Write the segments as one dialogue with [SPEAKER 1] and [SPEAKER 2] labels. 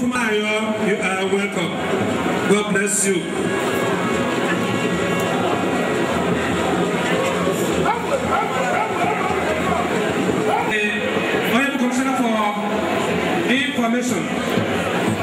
[SPEAKER 1] Fumayo, you are welcome. God bless you. Honorable Commissioner for Information.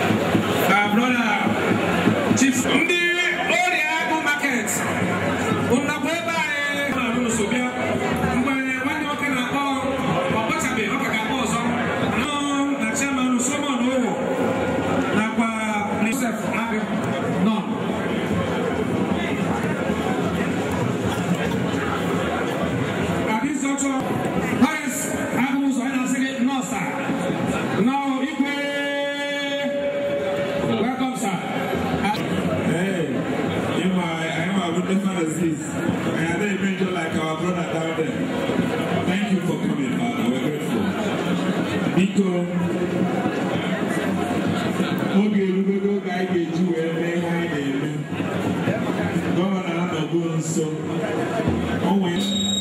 [SPEAKER 1] doing some. Oh, wait.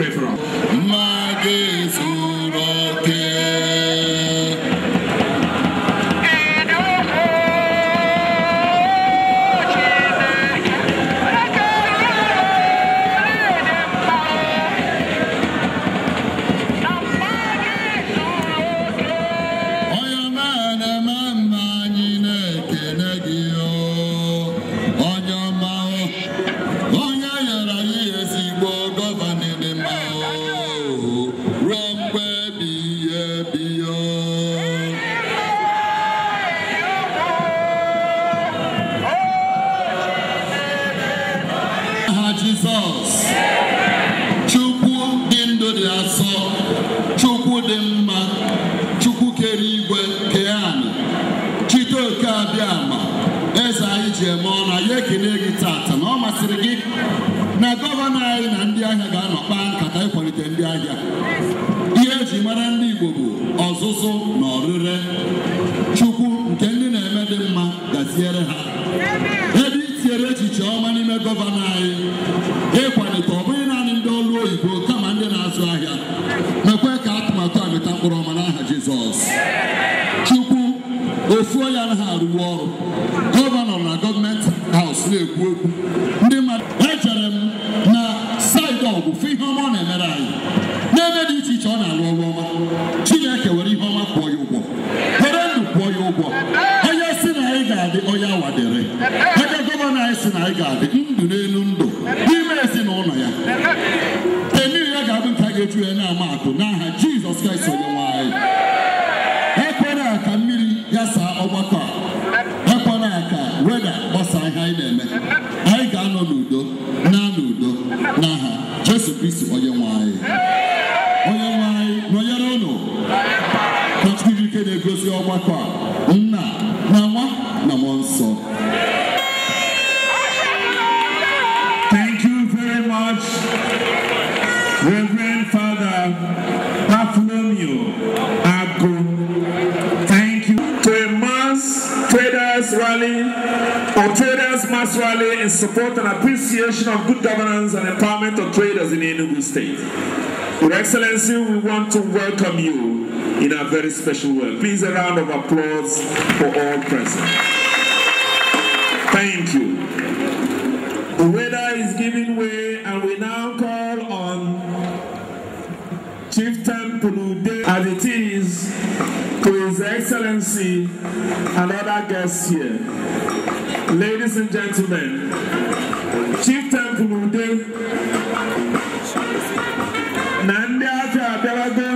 [SPEAKER 1] pray for
[SPEAKER 2] us. tinyere ha ebe itinyere echiche ọma n'ime gọvanọ anyị ịkwalite ọ bụghị naanị ndị ọrụ oyibo kama ndị na-azụ ahịa mekwe ka atụmatụ a mịta mkpụrụ ọma n'aha Jizọs Chukwu ofuo ya anaghị arụwa ọrụ gọvanọ na gọọmenti haus na-ekwu okwu kraịst onyenwe anyị ekwela ka mmiri ya saa ọgbakọ a ekwela ka weda gbasaa ihe anyị na-eme anyị ga-anọ n'udo na n'udo n'aha jesu kristi onyenwe anyị onyenwe anyị nọnyere ụnụ ka chukwu ike na-egosi ọgbakọ a
[SPEAKER 1] For traders must rally in support and appreciation of good governance and empowerment of traders in Enugu State. Your Excellency, we want to welcome you in a very special way. Please a round of applause for all present. Thank you. The weather is giving way and we now call on Chieftain Pulude as it is to His Excellency and other guests here. Ladies and gentlemen, Chieftain Pulude na ndi afịa abịalago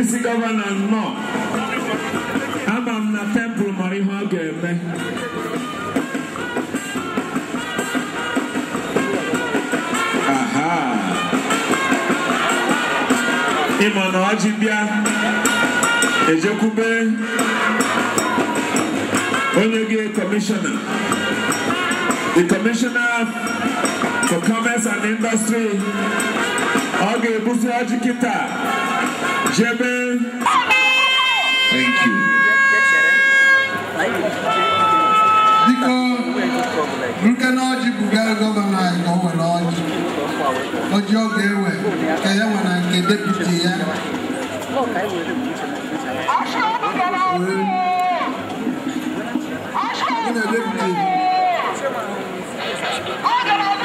[SPEAKER 1] isi gọvanọ nnọọ ama m na tempụl mara ihe ọ ga-eme ịma na ọjị bịa ejekwube Onyege Commissioner. The Commissioner for Commerce and Industry, Oge Busi Ajikita, Jebe. Thank you.
[SPEAKER 2] Biko, nke na ọjị bugara gọvanọ anyị ka o nwere ọjị. Ọjị ọ ga-ewe ka ya nwe na nke deputi ya. Wee
[SPEAKER 1] náà lébùté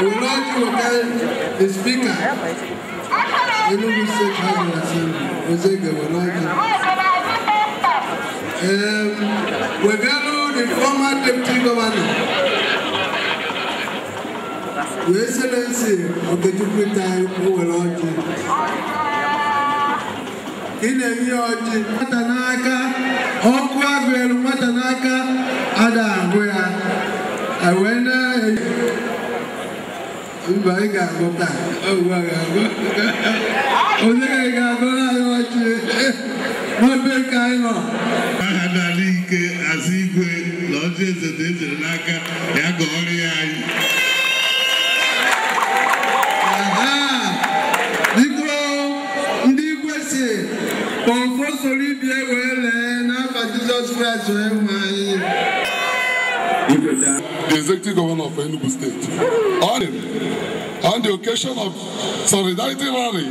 [SPEAKER 1] we now to okay the speaker Enugu State House Assembly Ozege Wanaji. Um, we value the former deputy governor, Your Excellency Okechukwu Tai Owelaji. ị na-enye ọjị nwata n'aka ọkụ agụ elu nwata n'aka ga-agụta a ga-agụ
[SPEAKER 2] onye ga-agụ na-anyụwachi n'ebe nke anyị nọ aha n'ala ike azụ igwe na ọjọ eze na ezere n'aka ya ga ya anyị ndị igwe si kpọmkpọ soro ibie wee lee n'afa Jizọs Kraịst wee nwe anyị the executive governor of Enugu State. On, on the occasion of Solidarity Rally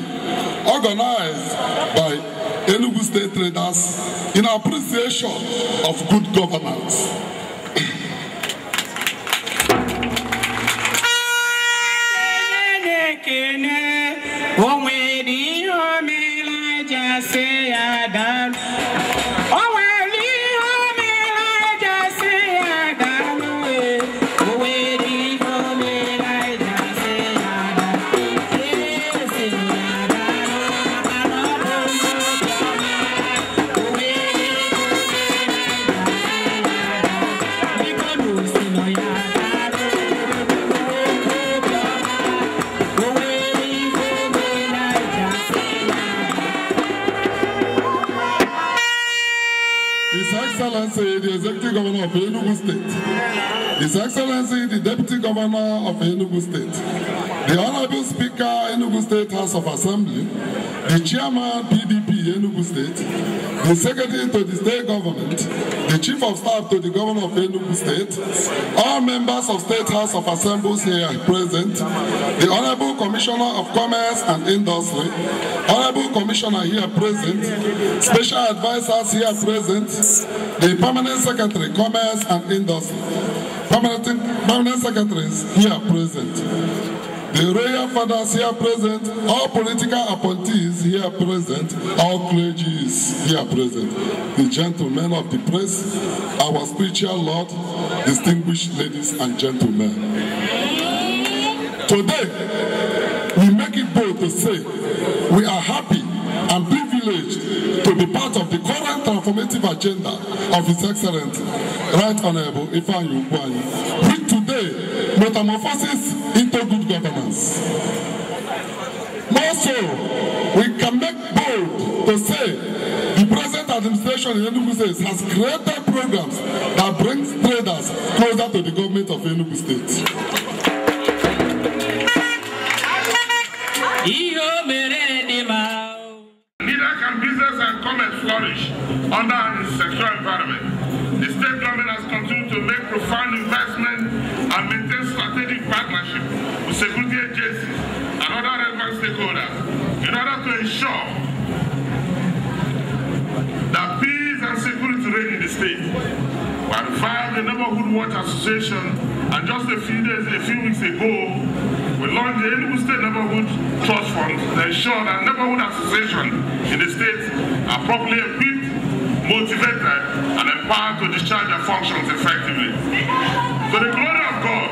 [SPEAKER 2] organized by Enugu State traders in appreciation
[SPEAKER 3] of good governance.
[SPEAKER 2] Excellency, the Deputy Governor of Enugu State, the Honorable Speaker, Enugu State House of Assembly, the Chairman, PDP, Enugu State, the Secretary to the State Government, the Chief of Staff to the Governor of Enugu State, all members of State House of Assemblies here present, the Honorable Commissioner of Commerce and Industry, Honorable Commissioner here present, Special Advisors here present, the Permanent Secretary, Commerce and Industry, permanent, permanent secretaries here present, the royal fathers here present, all political appointees here present, all clergy is here present, the gentlemen of the press, our spiritual lord, distinguished ladies and gentlemen. Today, we make it bold to say we are happy privilege to be part of the current transformative agenda of His Excellency, Right Honourable Ifeanyi Ugwuanyi, which today metamorphosis into good governance. More so, we can make bold to say the present administration in Enugu State has created programs that brings traders closer to the government of Enugu State.
[SPEAKER 3] under its sexual environment. The state government has continued to make profound investment and maintain strategic partnership with security agencies and other relevant stakeholders in order to ensure that peace and security reign in the state. We have filed the Neighborhood Watch Association and just a few days, a few weeks ago, we launched the Enugu State Neighborhood Trust Fund to ensure that neighborhood associations in the state are properly equipped motivated, and empowered to discharge their functions effectively. To the glory of God,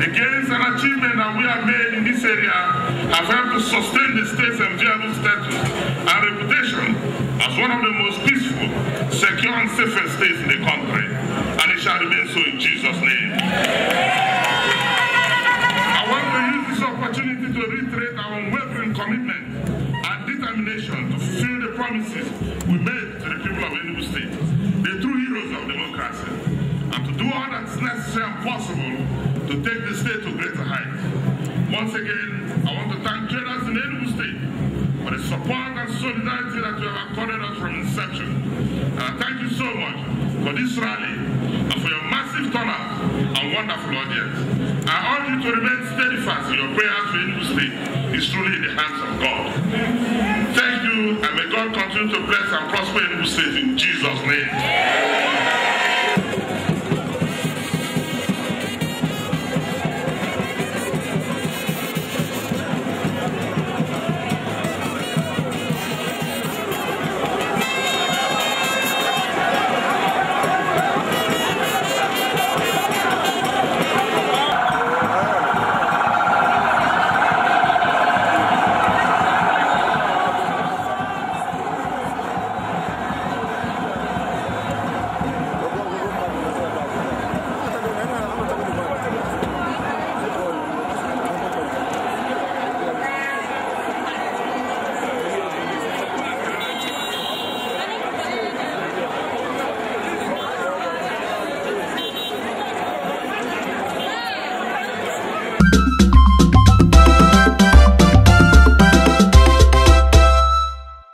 [SPEAKER 3] the gains and achievements that we have made in this area have helped to sustain the state's enviable status and reputation as one of the most peaceful, secure, and safest states in the country. And it shall remain so in Jesus' name. I want to use this opportunity to reiterate our unwavering commitment and determination to fulfill the promises we made hard and necessary and possible to take the state to greater heights. Once again, I want to thank traders in Enugu State for the support and solidarity that you have accorded us from inception. And I thank you so much for this rally and for your massive turnout and wonderful audience. I urge you to remain steadfast in your prayers for Enugu State. It's truly in the hands of God. Thank you, and may God continue to bless and prosper Enugu State in Jesus' name. Yeah.